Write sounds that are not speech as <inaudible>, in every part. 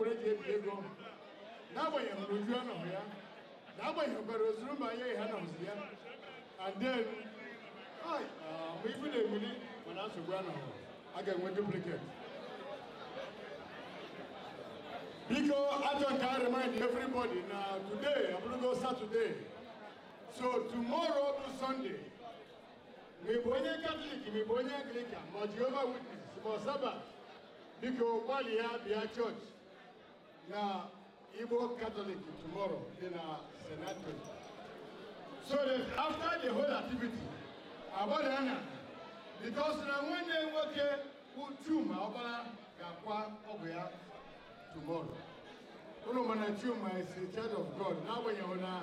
mkpụrụ eji ebi ego and then ma ibu na-ebuli mana nsogbu anọghị a ga-enwe duplicate biko ajọ nke a remind everybody today saturday so tomorrow bụ sunday ma ịbụ onye katọlik ma ịbụ witness na Igbo Catholic tomorrow in na Senate. So that after the whole activity, Abadana, because na nwanne nwoke bụ Chuma Ọbara ga-akwa ọgwụ ya tomorrow. Ụlọ mana Chuma is the child of God n'agbanyeghị na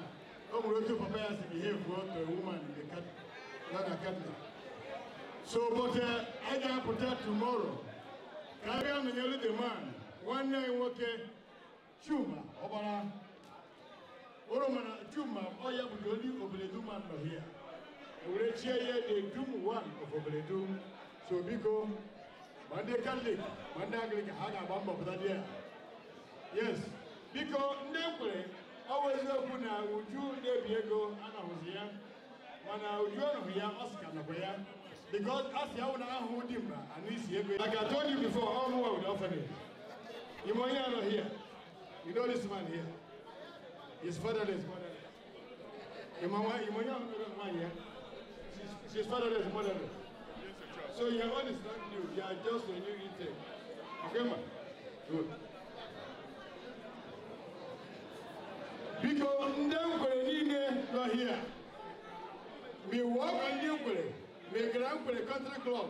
o nwere otu papa ya si behave to a woman in the Catholic. So, but uh, I ga-apụta tomorrow ka a bịa the man, nwanne nwoke Chuma ọgbara oromana Chuma ọya bụ the only Obeledu man here were chie the dum one of Obeledu so biko ma ndị Katọlik ma ndị ha ga-agba mbọ dị ya yes biko ndị kwere ọ bụ eziokwu na Uju na-ebi ego anahụzi ya mana Uju anahụ ya Oscar nakwa ya because asị ahụ dị mma ya like told you before all ime onye anọ here You know this man here? His fatherless motherless. Your mama, your mama, man here. She's, fatherless motherless. So your own is not new. You are just a new intake. Okay, man? Good. Because them Nine, you are here. Me work on Ndankwere. Me the Country Club.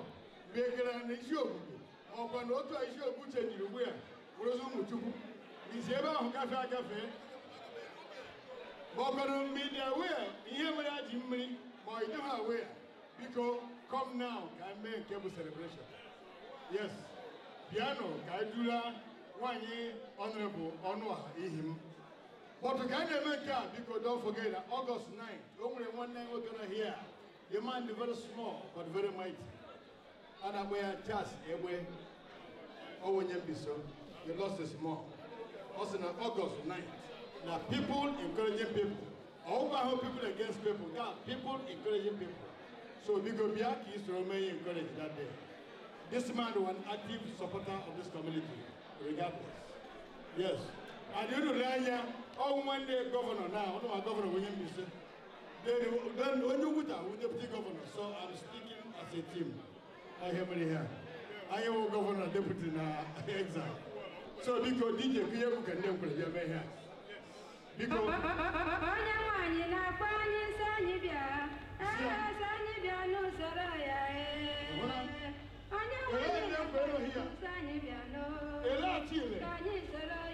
Me Gran Isiogbu. Ọkwa na otu a Isiogbu chejiri ugbu ya. Wụrụzi ụmụ Chukwu biziebahụ gafe agafe maọbụrụ mgbidi awea ihe mere a awea biko come now ka anyị mee celebration yes piano ka anyị dula nwaanyị ọnụrụbụ ọnụ a ihi m bọtụ ka anyị na-eme nke don't forget that August one night we're gonna hear. the man very small but very mighty And a na-akpọ ya Charles Egbe onye mbiso he lost his small ọ sị na ọgọst na people encouraging people Over how people against people ga people encouraging people so biko bịa ka to soro encouraged that day this man was an active supporter of this community regardless yes and you lere anya ọwụ nwanne gọvanọ na ọnụwa gọvanọ onye mbise then onye ukwuta wụ deputy governor so i'm speaking as a team I ahịa here. I am a governor deputy now. <laughs> exile so because DJ ka ihe bụ ka ndị nkwere bịa a biko onye nwaanyi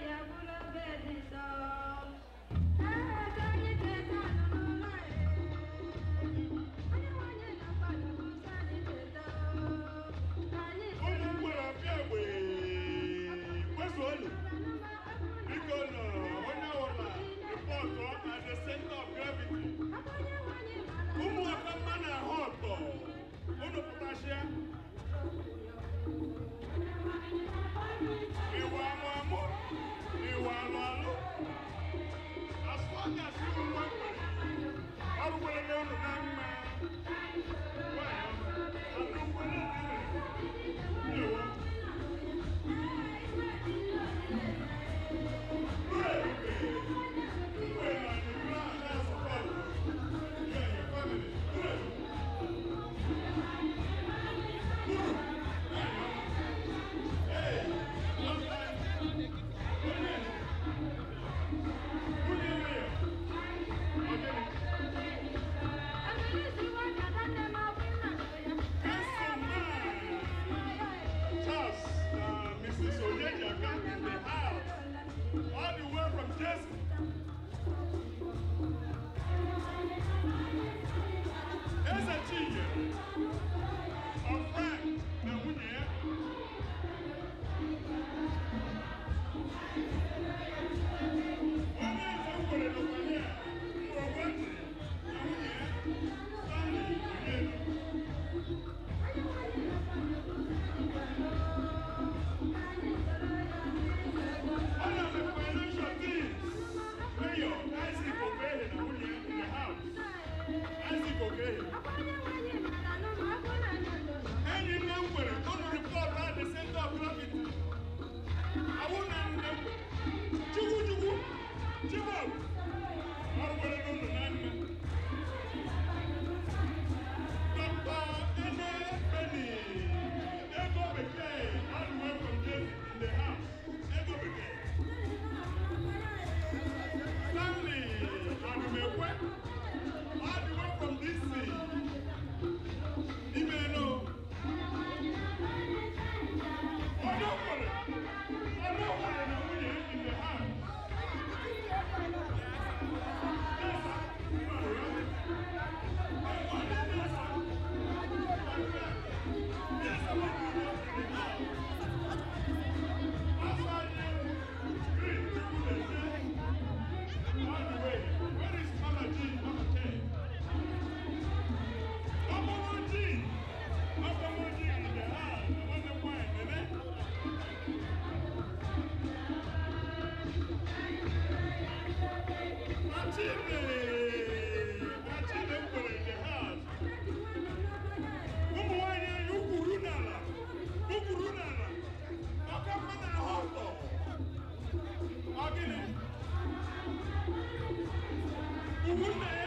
Woman!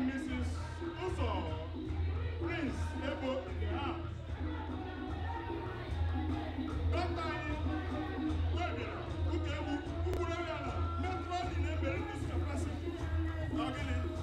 and Mrs. Uso, Prince Ebo in the house. Dọkịta anyị wee bịara ụka egwu ụkwụrụ ebe a na metro dị na-ebere discapacity. Ọ gịnị?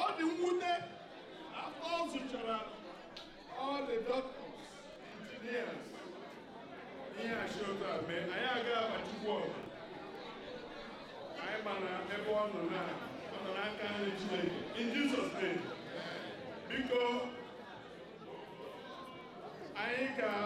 ọ dị mwute all the children, all the doctors engineers ihe ashota mee anyị I abachukwu a anyị I ebe ọ nọ na ọ nọ n'aka nri Chineke in Jesus name I ain't got.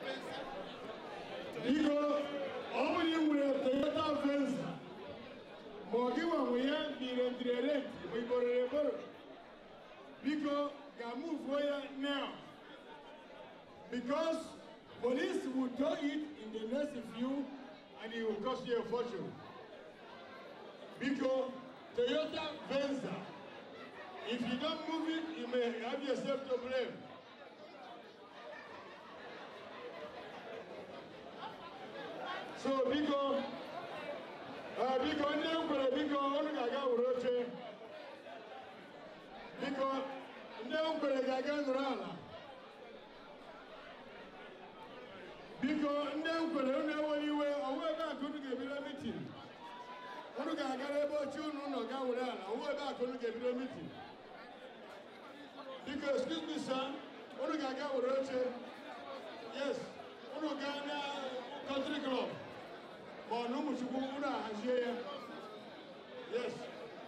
Because Niko omuriwe toyota venza mogiwa muyambire ndirerenti muiborere borore biko it now because police will do it in the next few and it will cost you a fortune. Because Toyota Venza, if you don't move it, you may have yourself to blame. so biko uh, biko ndị m kwere biko unu ga-aga were oche biko ndị m kwere ga-aga nọrọ ala biko ndị m kwere unu enwere iwe ọnwa ebe a ka unu ga-ebido mitin unu ga-agara ebe oche unu nọ ga were ala ọnwa ebe a unu ga-ebido mitin biko excuse me sir unu ga-aga were oche yes unu ga na country club wanumusukulu unahaziyeya yes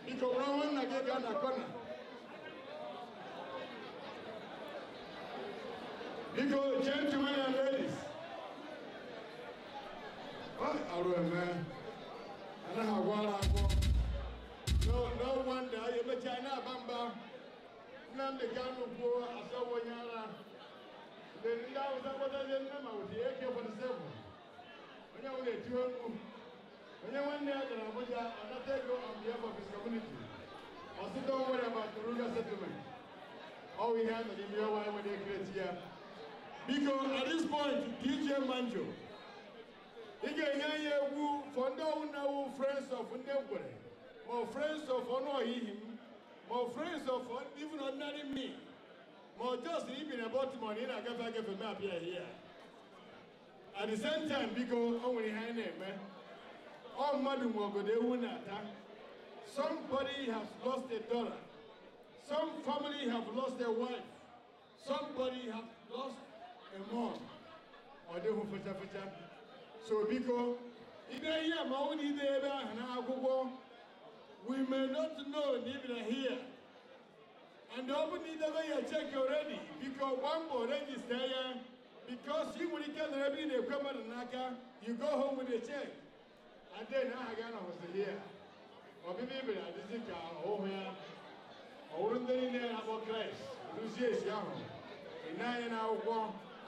ika urawannagega corner. Because gentlemen and ladies, what are we, man? I have one No, no wonder eh, you bet China Bamba. Nam the Ganu poor, I saw one yara. Then that was what I didn't with eh, the AK 47. onye wụ eti okwu onye nwanne ya gara Abuja anata ego on behalf of his community ọsịta onwere ma Toruga ọwụ ihe a nọ n'ime enwere ike ya biko at this point DJ Manjo ị ga-enye anyị egwu fọ ndị ọwụ na friends of ndị ngwere ma ọ friends of ọnụ ọhihi m ma ọ friends of even ordinary me ma ọ just ibi na Baltimore na ị na-agafe agafe m abịa ihe at the same time biko o oh, nwere ihe anyi All na-eme ọ eh? mmadụ oh, ma ọgodo ewu na somebody has lost a daughter some family have lost their wife somebody have lost a mom ọ dịghị fechafecha so biko if I hear my own ide ebe ahụ na akwụkwọ we may not know even here and the bụ the way you check already one gbaa mbọ rejista ya because you when you get the n'ebe they come out mmadụ n'aka you go home with a check and then aha gị anọghịzi ya ọbịbịa ibere adịzi here. ọhụhụ ya ọwụrụ ndị niile na-akpọ kraịst rụzie esi ahụ ịna anya n'akwụkwọ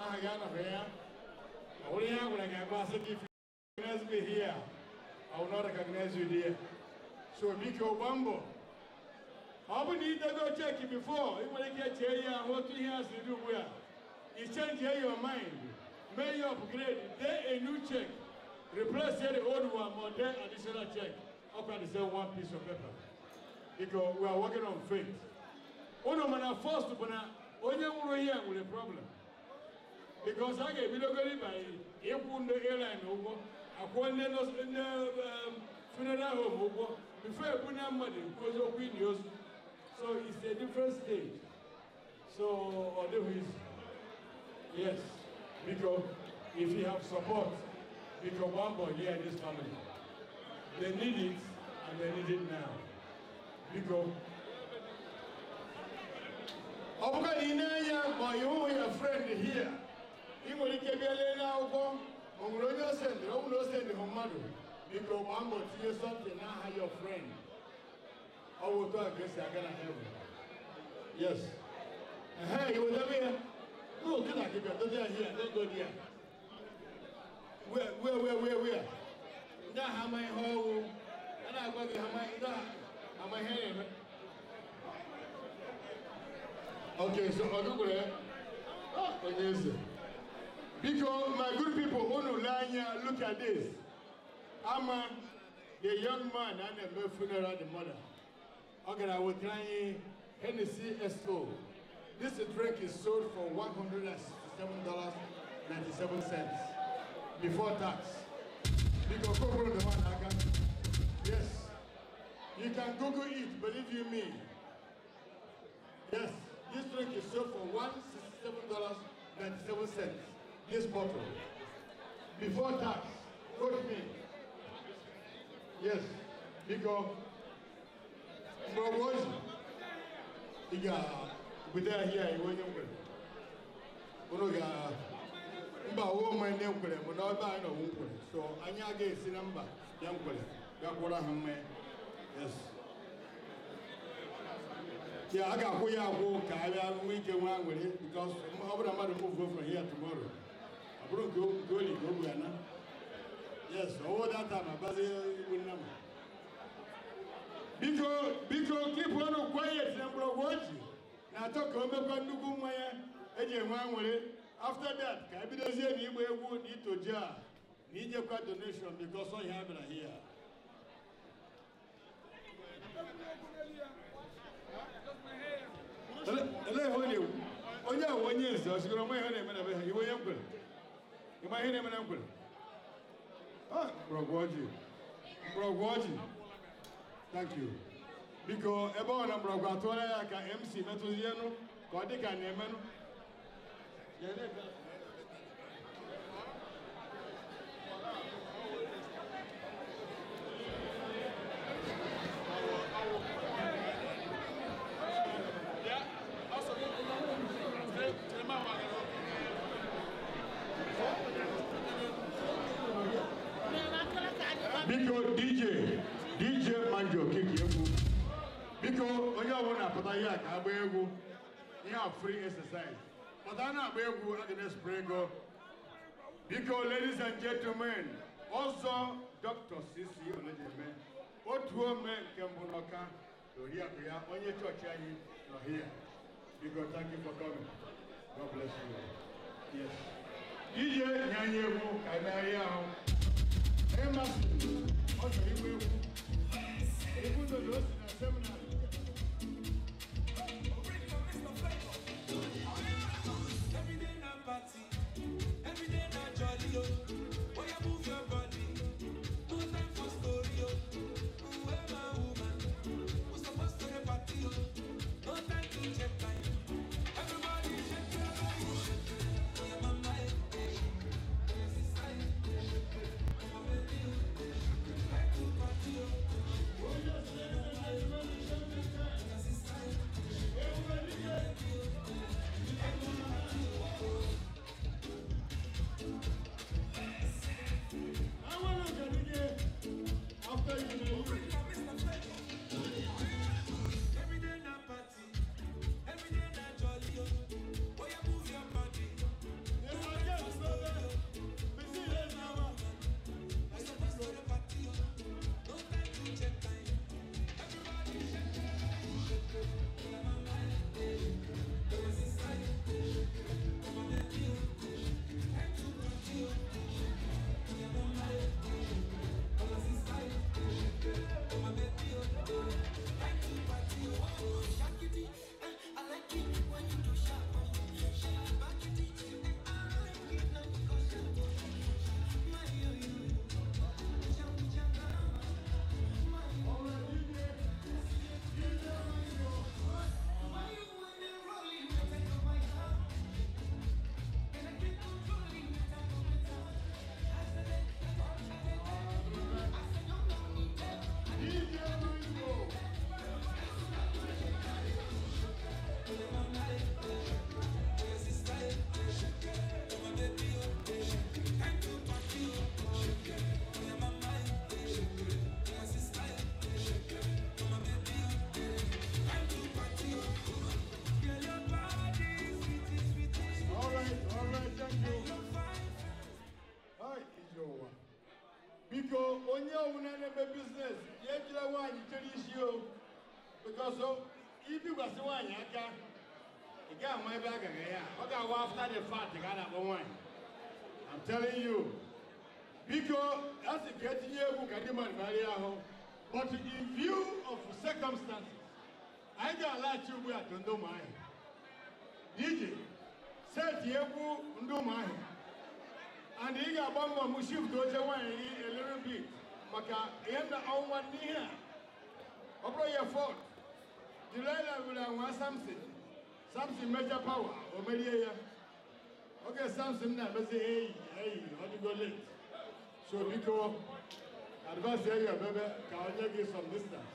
aha gị anọghị ya ọwụrụ ihe a gwara gị agba if you recognize me here I will not recognize you there so biko gbaa mbọ ọ bụ na idego cheki bifo ị nwere ike chee ya ahụ otu ihe a siri ugbu a you change your mind. May you upgrade. Then a new check. Replace the old one, More then additional check. How can you sell one piece of paper? Because we are working on faith. Uno mana first bana onye nwụrụ ihe nwere problem. Because I get bidogori by ịkwụ ndị airline ụgwọ, akwụọ ndị um, funeral home ụgwọ, before ebunye put ekwu money because of ozu. So it's a different stage. So ọ dịghị izu. Yes, because if you have support, because one boy here in this family, they need it and they need it now. Because ọ bụga na ị na-anya friend here ị nwere ike bịa lee n'akwụkwọ o nwere onye osendịrị ọ bụrụ osendịrị hụ mmadụ biko gbaa mbọ tinye something n'aha your friend ọ bụ otu a ka esi aga na heaven yes ehe No, get out, get Don't go here. Don't go there. Where, where, where, where, where? Now, how my whole, and I'm going to have my, how my hand. Okay, so I'll go there. Oh, yes. Because my good people, Onulanya, look at this. Ama, the young man, and the funeral, the mother. Okay, I will try Hennessy S.O. This drink is sold for $107.97 before tax. Because Google the one Yes. You can Google it, believe you me. Yes, this drink is sold for $167.97. This bottle. Before tax. Quote me. Yes. Because. From what? Yeah. guda hiya yi wani kwere unu ga mba wo ma ne kwere mu na ba na wo kwere so anya ga esi na mba ya kwere ga kwara ha me yes ya aga ko ya ko ka ya mu ke wa nwere because ọ bụrụ mmadụ move go from here tomorrow abụrụ go go li go bua na yes owo that time abazi ibu nna m biko biko keep on quiet na mgbọrọgwụ ọchị na-achọ ka o mekwa nnukwu mmanya eji enwe aṅụrị after that ka ebidozie na ịgba egwu na itoji a na ijekwa donation because ọ ya bịara hia onye ahụ onye nze ọ sigoro nwa ihe na-eme na be ha iwe onye mkwere ịma ihe na-eme na mkwere ah, mgbọrọgwụ ọjị mgbọrọgwụ ọjị thank you Because a ọ na mgbọrọgwụ atụọla mc metụzi enu ka ọ dj pụta ihe a ka agba egwu free exercise ladies and gentlemen ọzọ dr cc olejeme otu ome nke mbụ We are on your church here Because thank you for coming god bless you yes ije nye anyị egwu ka anyị megharịa ahụ biko onye ọbụla na-eme biznes ya ejila nwaanyị chere isi o bikọsọ ibikwasị nwaanyị aka ị gaghị ama ebe a gara ya ọ ga agwa after the fact ka a na-akpọ nwaanyị I'm telling you biko a sị ka etinye egwu ka ndị mmadụ gbarịa ahụ but in view of circumstances anyị ga-alaghachi ugbu a to ndị ụmụahịa iji seti egwu ndị ụmụahịa and he ị ga-agba mbọ m shift oche nwaanyị gị elere bi maka ihe na ọnwa n'ihe a ọ bụrụ ya fọd Delilah were anwa Samson Samson meja pawa o merie ya oge Samson na hey, eyi eyi ọ go late so biko advice ya baby. ka onye gị some distance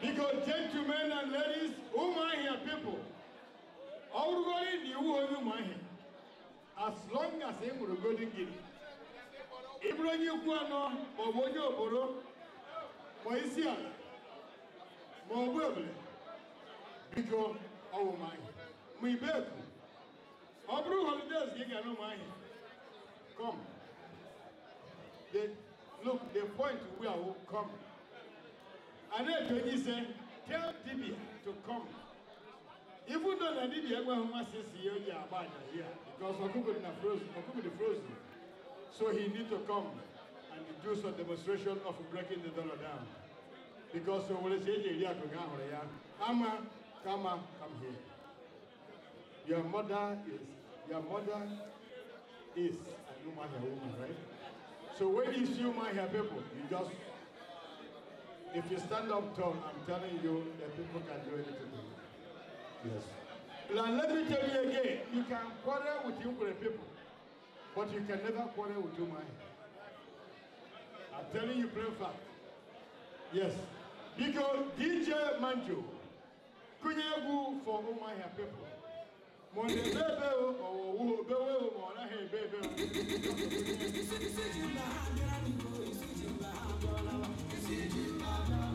biko gentlemen and ladies ụmụ ahịa people ọ wụrụgoro na iwu onye ụmụ ahịa as long as ị ṅụrụ golden guinea ị bụrụ onye ikwu anọ maọbụ onye oboro ma isi ala maọbụ ebule biko ọwụmahị ma ibeku ọ bụrụ holidays gị gara ụmụahịa come look the point we are come and then eji onye tell dibia to come even though na didi ẹgbẹ́ ọmọ sisi yẹ ọjà àbá àjàyè à because could na frozen ọkùnkùn na frozen so he need to come and do some demonstration of breaking the dollar down because so lè ṣe é jẹ́ ìrí àkùnkùn àhùrẹ̀ yá ama kama come here your mother is your mother is a human hair woman right so when you see my hair people you just if you stand up tall i'm telling you the people can do anything Yes. let me tell you again, you can quarrel with your people, but you can never quarrel with Umai. I'm telling you plain fact. Yes. Because DJ Manjo, Kunyegu for have people.